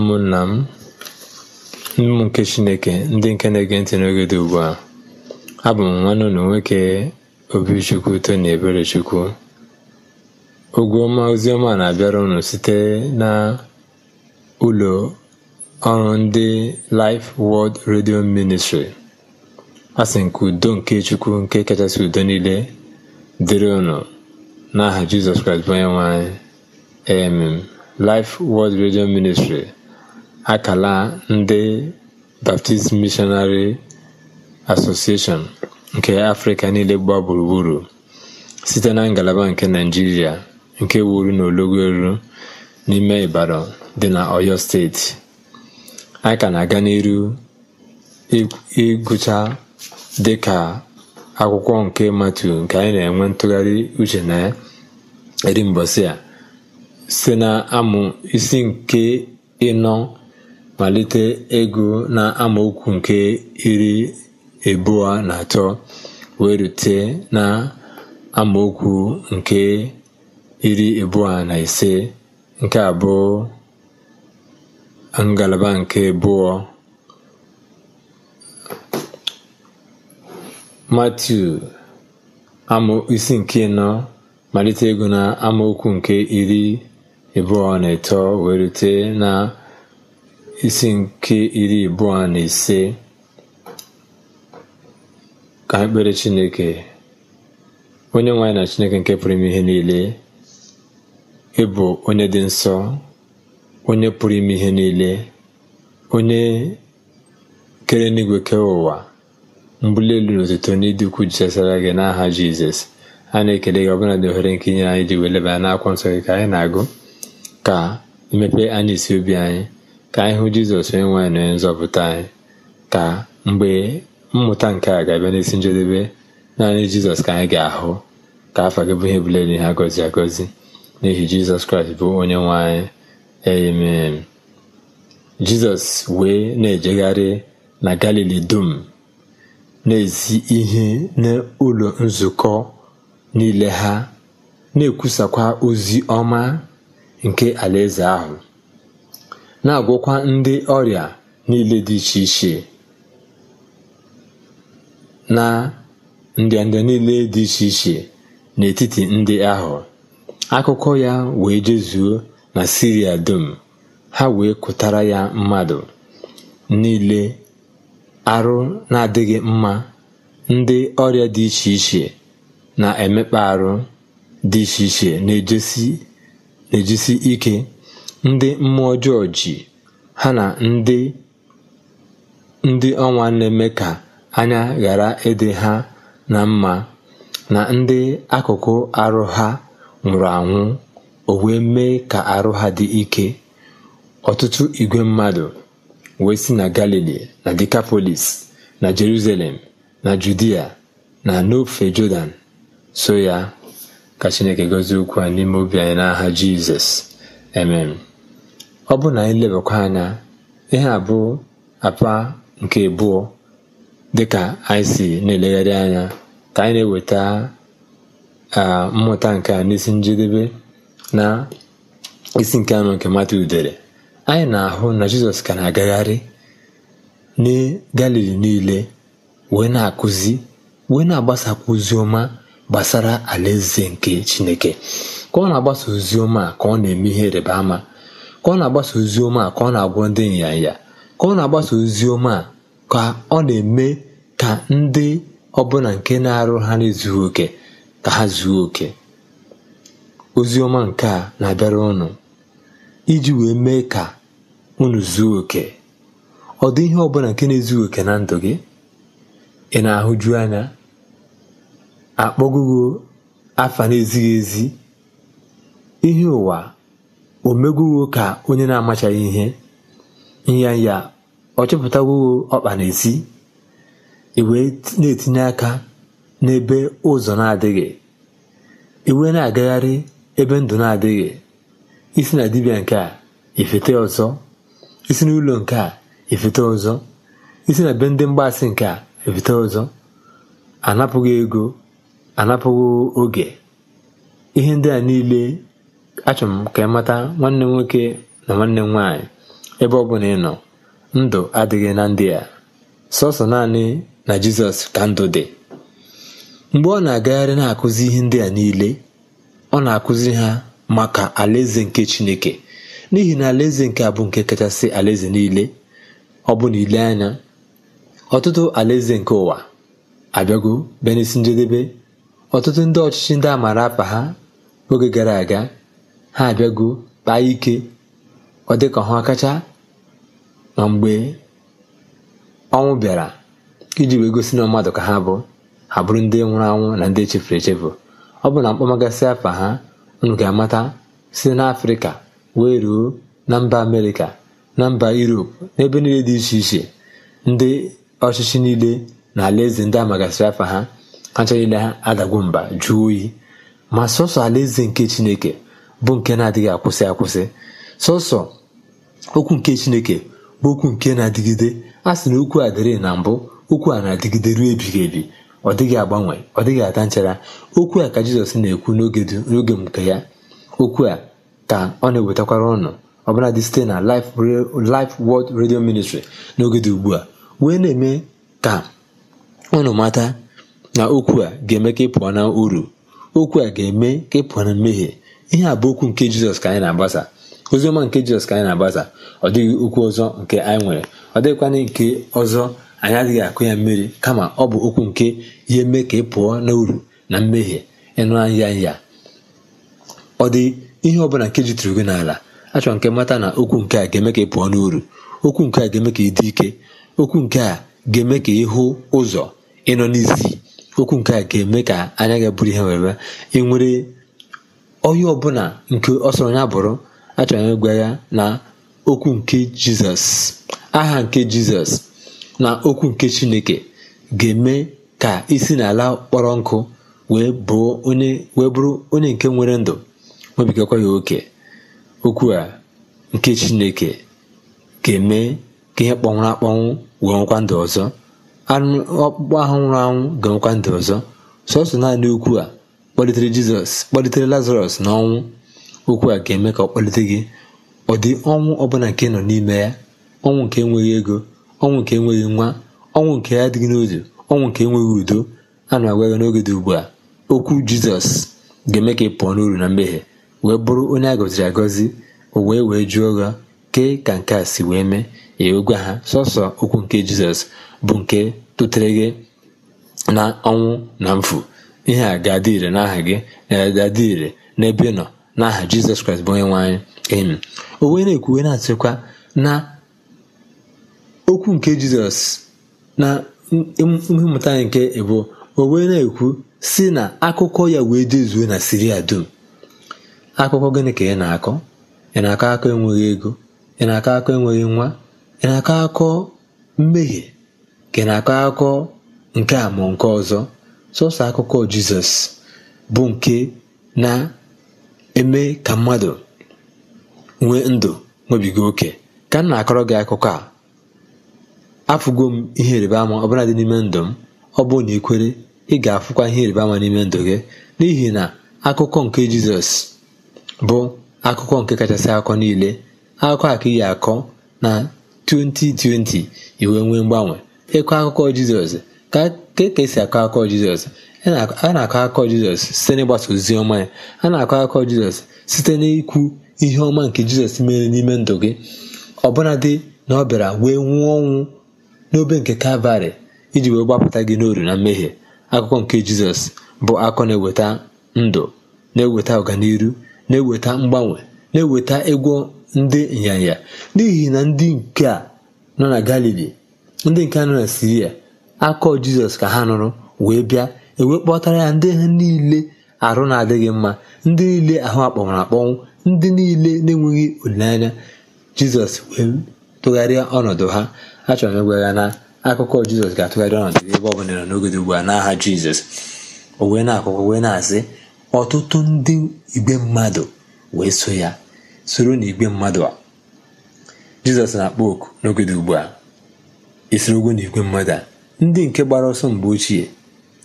ụmụnna m ụmụ nke chineke ndị nke na-ege ntị n'oge dị ugbu a abụ m nwanne ụlọ nwoke obichukwu tony eberechukwu ogwu ọma oziọma na-abịara unu site na ụlọ ọrụ ndị Life World Radio Ministry asị nke udo nke chukwu nke kachasị udo niile dịrị ụnụ n'aha Jizọs Kraịst bụ onye nwe anyị Amen Life World Radio Ministry akala ndị Baptist Missionary Association nke Afrịka niile gbaa gburugburu site na ngalaba nke naijiria nke wuru na ologo Elu n'ime Ibadan dị na oyo Steeti. a ka na-aga n'iru ịgụcha ka akwụkwọ nke matu nke anyị na-enwe ntụgharị uche na ya eri mbọsị a site na amụ isi nke ịnọ malite ego na amaokwu nke iri abụọ na atọ wee rute na amaokwu nke iri abụọ na ise nke abụọ ngalaba nke abụọ matu isi nke nọ malite ego na amaokwu nke iri abụọ na atọ wee rute na isi nke iri abụọ na ise ka anyị Chineke onye nwanyị na Chineke nke pụrụ ime ihe niile ịbụ onye dị nsọ onye pụrụ ime ihe niile onye kere n'igwe kee ụwa elu na otuto n'ịdị ukwu jesara gị n'aha Jizọs a na-ekele gị ọbụla dị ohere nke inye anyị ji weleba n'akwụkwọ nsọ gị ka anyị na-agụ ka imepe anyị isi obi anyị ka anyị hụ jizọs onye nwe na onye nzọpụta anyị ka mgbe mmụta nke a ga-abịa n'isi njedebe naanị jizọs ka anyị ga-ahụ ka afọ gị bụ ihe bụla ihe agọzi agọzi n'ihi jizọs kraịst bụ onye nwe anyị amen jizọs wee na-ejegharị na galili dum na-ezi ihe n'ụlọ nzukọ niile ha na-ekwusakwa ozi ọma nke alaeze ahụ na-agwọkwa ndị ọrịa niile dị iche iche na ndịnda niile dị iche iche n'etiti ndị ahụ akụkọ ya wee jezuo na siria dum ha wee kụtara ya mmadụ niile arụ na-adịghị mma ndị ọrịa dị iche iche na-emekpa arụ dị iche iche na ejisi ike ndị mmụọ ọjọọ ji ha na ndị ndị ọnwa na-eme ka anya ghara ịdị ha na mma na ndị akụkụ arụ ha nwụrụ anwụ o wee mee ka arụ ha dị ike ọtụtụ igwe mmadụ wee si na galili na dekapolis na jerusalem na judia na n'ofe jọdan so ya ka chineke gozie okwu a n'ime obi anyị n'aha jizọs emem ọ bụrụ na anyị lebakwa anya ihe a bụ apa nke abụọ dịka anyị si na-elegharị anya ka anyị na-eweta mmụta nke a n'isi njedebe na isi nke anụ nke mata udere anyị na-ahụ na jizọs ka na-agagharị na galili niile wee na-akụzi wee na-agbasakwa ozi ọma gbasara alaeze nke chineke ka ọ na-agbasa ozi ọma ka ọ na-eme ihe rịba ama ka ọ na-agbasa ozi ọma ka ọ na-agwọ ndị nyanya ka ọ na-agbasa ozi ọma ka ọ na-eme ka ndị ọbụla nke na-arụ ha na oke ka ha zuo oke ozi ọma nke a na-abịara ụnụ iji wee mee ka unu zuo oke ọ dị ihe ọbụla nke na-ezughị oke na ndụ gị ị na-ahụju anya akpọgogo afa na-ezighị ezi ihe ụwa o ka onye na-amachaghị ihe ịnya ya ọ chọpụtawuo ọkpa na-esi iwe na-etinye aka n'ebe ụzọ na-adịghị iwe na-agagharị ebe ndụ na-adịghị isi na dibịa nke a ifete ọzọ isi n'ụlọ nke a ifete ọzọ isi na be ndị mgbasị nke a ifete ọzọ anapụghị ego anapụghị oge ihe ndị niile achọrọ m ka ị mata nwanne m nwoke na nwanne m nwaanyị ebe ọ bụla ị nọ ndụ adịghị na ndị a sọsọ naanị na jizọs ka ndụ dị mgbe ọ na-agagharị na-akụzi ihe ndị a niile ọ na-akụzi ha maka alaeze nke chineke n'ihi na alaeze nke a bụ nke kachasị alaeze niile ọ bụ na anya ọtụtụ alaeze nke ụwa abịago bịa njedebe ọtụtụ ndị ọchịchị ndị a apa ha oge gara aga ha abịago kpaa ike ọ dị ka ha kacha na mgbe ọnwụ bịara iji wee gosi na mmadụ ka ha bụ ha bụrụ ndị nwụrụ anwụ na ndị echefuru echefu ọ bụ na mkpọmagasị afa ha unu ga-amata site n'afrịka wee ruo na mba amerịka na mba yuropu n'ebe niile dị iche iche ndị ọchịchị niile na alaeze ndị amagasịrị afa ha ha niile ha adagwo mba jụọ oyi ma sọsọ alaeze nke chineke bụ nke na-adịghị akwụsị akwụsị sọsọ okwu nke chineke bụ okwu nke na-adịgide a sị na okwu a dịrị na mbụ okwu a na-adịgide ruo ebighị ebi ọ dịghị agbanwe ọ dịghị ata nchara okwu a ka jizọs na-ekwu n'oge nke ya okwu a ka ọ na-ewetakwara ọnụ ọbụladị site na Life World Radio Ministry n'oge dị ugbu a wee na-eme ka ụnụ mata na okwu a ga-eme ka ị pụọ na uru okwu a ga-eme ka ị pụọ na mmehie ihe a bụ okwu nke jizọs ka anyị na-agbasa oziọma nke jizọs ka anyị na-agbasa ọ dịghị okwu ọzọ nke anyị nwere ọ dịghịkwana nke ọzọ anyị adịghị akụ ya mmiri kama ọ bụ okwu nke ihe mee ka ị pụọ n'uru na mmehie ịnụ anya ya ọ dị ihe ọbụla nke jitụrụ gị n'ala achọrọ nke mata na okwu nke a ga-eme ka ị pụọ n'uru okwu nke a ga-eme ka ị dị ike okwu nke a ga-eme ka ị hụ ụzọ ịnọ n'isi okwu nke a ga-eme ka anya gị bụrụ ihe nwere ị nwere onye ọbụla nke ọ sọrọ ya bụrụ achọrọ ya ịgwa ya na okwu nke jizọs aha nke jizọs na okwu nke chineke ga-eme ka isi n'ala kpọrọ nkụ wee bụrụ onye nke nwere ndụ nwebigakwa ya oke okwu a nke chineke ga-eme ka ihe kpọnwụrụ akpọnwụ wee nwekwa ndụ ọzọ anụ ọkpụkpọ ahụ nwụrụ anwụ ga nwekwa ndụ ọzọ sọsọ naanị okwu a kpọlitere jizọs kpọlitere lazarọs n'ọnwụ okwu a ga-eme ka ọ kpọlite gị ọ dị ọnwụ ọbụla nke nọ n'ime ya ọnwụ nke enweghị ego ọnwụ nke enweghị nwa ọnwụ nke adịghị n'ozu ọnwụ nke enweghị udo a na-agwa ya n'oge dị ugbu a okwu jizọs ga-eme ka ị pụọ n'uru na mmehie wee bụrụ onye a gọziri agọzi o wee wee jụọ gha kee ka nke a si wee mee ya gwa ha sọsọ okwu nke jizọs bụ nke tụtere gị na ọnwụ na mfu ihe a ga-adị ire n'aha gị e, ga-adị ire n'ebe ị nọ n'aha jizọs kraịst bụ onye nwe anyị emi o na-ekwuwe na-atụkwa na okwu nke jizọs na ihe mmụta nke ebo o na-ekwu si na akụkọ ya wee dezuo na siria dum akụkọ gịnị ka ị na-akọ ị na-akọ akọ enweghị ego ị na-akọ akọ enweghị nwa ị na-akọ akọ mmehie ka ị na-akọ akọ nke a ma nke ọzọ sọsọ akụkọ jizọs bụ nke na-eme ka mmadụ nwee ndụ nwebiga oke ka m na-akọrọ gị akụkọ a afụgo m ihe ịrịba ama ọbụla dị n'ime ndụ m ọ bụrụ na ikwere ị ga-afụkwa ihe ịrịba ama n'ime ndụ gị n'ihi na akụkọ nke jizọs bụ akụkọ nke kachasị akụkọ niile akụkọ a ka iyi akọ na 2020 iwe nwee mgbanwe ịkọ akụkọ jizọs ka e ka esi akọ akọ Jizọs a na-akọ akọ Jizọs site n'ịgbasa ozi ọma ya a na-akọ akọ Jizọs site n'ikwu ihe ọma nke Jizọs mere n'ime ndụ gị ọbụnadị na ọ bịara wee nwụọ ọnwụ n'obe nke Kalvarị iji wee gbapụta gị n'oru na mmehie akụkọ nke Jizọs bụ akọ na-eweta ndụ na-eweta ọganiru na-eweta mgbanwe na-eweta egwu ndị ịnyanya n'ihi na ndị nke a nọ na Galili ndị nke a nọ na Siria akọ jizọs ka ha nụrụ wee bịa e kpọtara ya ndị ha niile arụ na-adịghị mma ndị niile ahụ akpọnwụrụ akpọnwụ ndị niile na-enweghị olileanya jizọs wee tụgharịa ọnọdụ ha achọrọ m ịgwa ya na akụkọ jizọs ga-atụgharị ọnọdụ ebe ọ bụla n'oge ugbu a n'aha jizọs o wee na-akụkọ wee na-asị ọtụtụ ndị igwe mmadụ wee so ya soro na igbe mmadụ a jizọs na-akpọ oku n'oge ugbu a isiri ogwo na igwe mmadụ a ndị nke gbara ọsọ mgbe ochie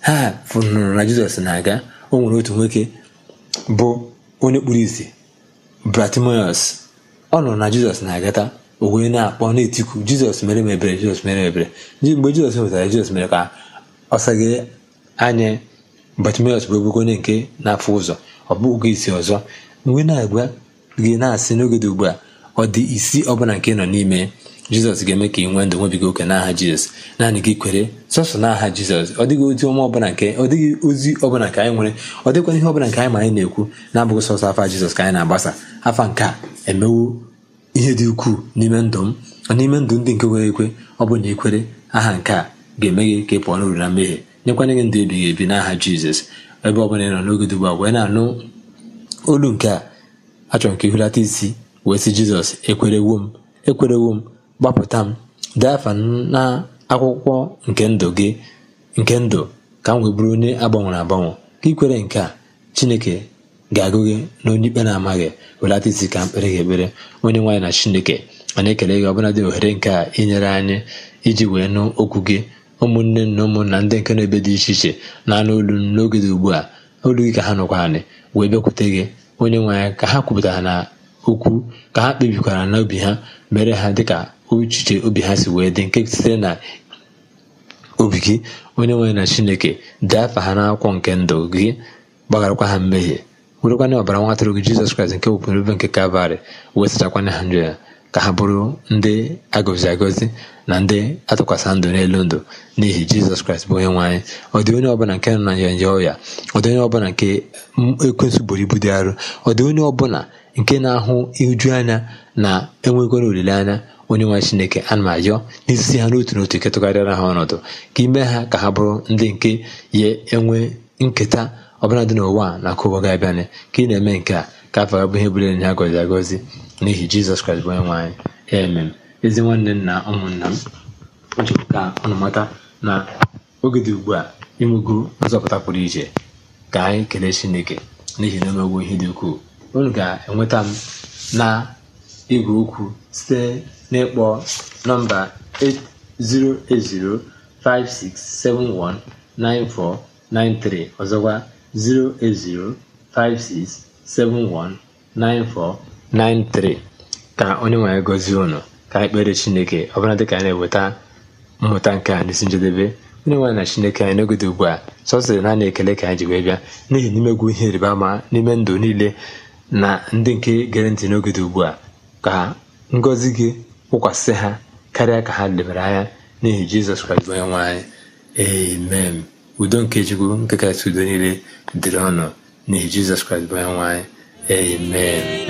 ha fụnụrụ na jizọs na-aga o nwere otu nwoke bụ onye kpuru isi bratimoyos ọ nụrụ na jizọs na-agata o wee na-akpọ na-etiku jizọs mere mebere ebere jizọs mere mebere mgbe jizọs nwetara jizọs mere ka ọ saghị anya bratimoyos bụ ogboko onye nke na-afụ ụzọ ọ bụghị isi ọzọ mgbe na-agwa gị na-asị n'oge dị ugbu a ọ dị isi ọbụla nke nọ n'ime jizọs ga-eme ka ị nwee ndụ nwebiga oke n'aha jizọs naanị gị kwere sọsọ n'aha jizọs ọ dịghị ozi ọma ọbụla nke ọ dịghị ozi ọbụla nke anyị nwere ọ dịkwa ihe ọbụla nke anyị ma anyị na-ekwu na-abụghị sọsọ afa jizọs ka anyị na-agbasa afa nke a emewo ihe dị ukwuu n'ime ndụ m n'ime ndụ ndị nke nwere ekwe ọ bụ na aha nke a ga-eme gị ka ị pụọ n'uru na mmehie nyekwanye gị ndụ ebighị ebi n'aha jizọs ebe ọ bụla ị nọ n'oge dị a wee na-anụ olu nke a achọrọ ka ị isi wee sị jizọs ekwerewo m ekwerewo m gbapụta m dee afa na akwụkwọ nke ndụ gị nke ndụ ka m wee bụrụ onye agbanwere agbanwe ka ikwere nke a chineke ga-agụ gị na onye ikpe na-amaghị welata isi ka mkpere gị ekpere onye nwaanyị na chineke ma na-ekele gị ọbụla dị ohere nke a inyere anyị iji wee nụ okwu gị ụmụnne na ụmụnna ndị nke na-ebe dị iche iche na-anụ olu n'oge dị ugbu a olu gị ka ha nụkwa anyị wee bịakwute gị onye nwaanyị ka ha kwupụtara na okwu ka ha kpebikwara n'obi ha mere ha dịka uchiche obi ha si wee dị nke sitere na obi gị onye nwere na chineke dee afa ha n'akwụkwọ nke ndụ gị gbagharakwa ha mmehie werekwana ọbara nwa atụrụ gị jizọs kraịst nke wepụrụ ebe nke kalvarị wee na ha njọ ya ka ha bụrụ ndị agọzi agọzi na ndị atụkwasị ndụ n'elu ndụ n'ihi jizọs kraịst bụ onye nwanyị. anyị ọ onye ọbụla nke nọ na ya ọya ọ onye ọbụla nke ekwensu buru ibu dị arụ ọ dị onye ọbụla nke na-ahụ iju anya na enwegoro olileanya onye nwe chineke ana m ayọ n'izisi ha n'otu n'otu ketụgharịara ha ọnọdụ ka ime ha ka ha bụrụ ndị nke ya enwe nketa ọbụla dị n'ụwa na-akụ ụwa ga-abịanị ka ị na-eme nke a ka afọ ga bụ ihe bụrụ enyi ha gọzi agọzi n'ihi jizọs kraịst bụ onye anyị emem ezi nwanne m na ụmụnna m achọpụ ka ọnụ mata na oge dị ugbu a inwego nzọpụta pụrụ iche ka anyị kelee chineke n'ihi na omegwo ihe dị ukwuu unu ga-enweta m na igwe okwu site n'ịkpọ nọmba 08056719493 ọzọkwa 08056719493 ka onye nwanyị gọzie ụnụ ka anyị kpere chineke ọbụla dịka anyị na-eweta mmụta nke a n'isi njedebe onye nwaanyị na chineke anyị n'ogede ugbu a sọsịrị naanị ekele ka anyị ji wee bịa n'ihi n'imegwu ihe ịrịba ama n'ime ndụ niile na ndị nke gere ntị n'oge ugbu a ka ngọzi gị kwụkwasị ha karịa ka ha debere anya n'ihi jizọs kraịst onye nwe anyị amen udo nke chukwu nke kasị udo niile dịrị ọnụ n'ihi jizọs kraịst onye nwe anyị amen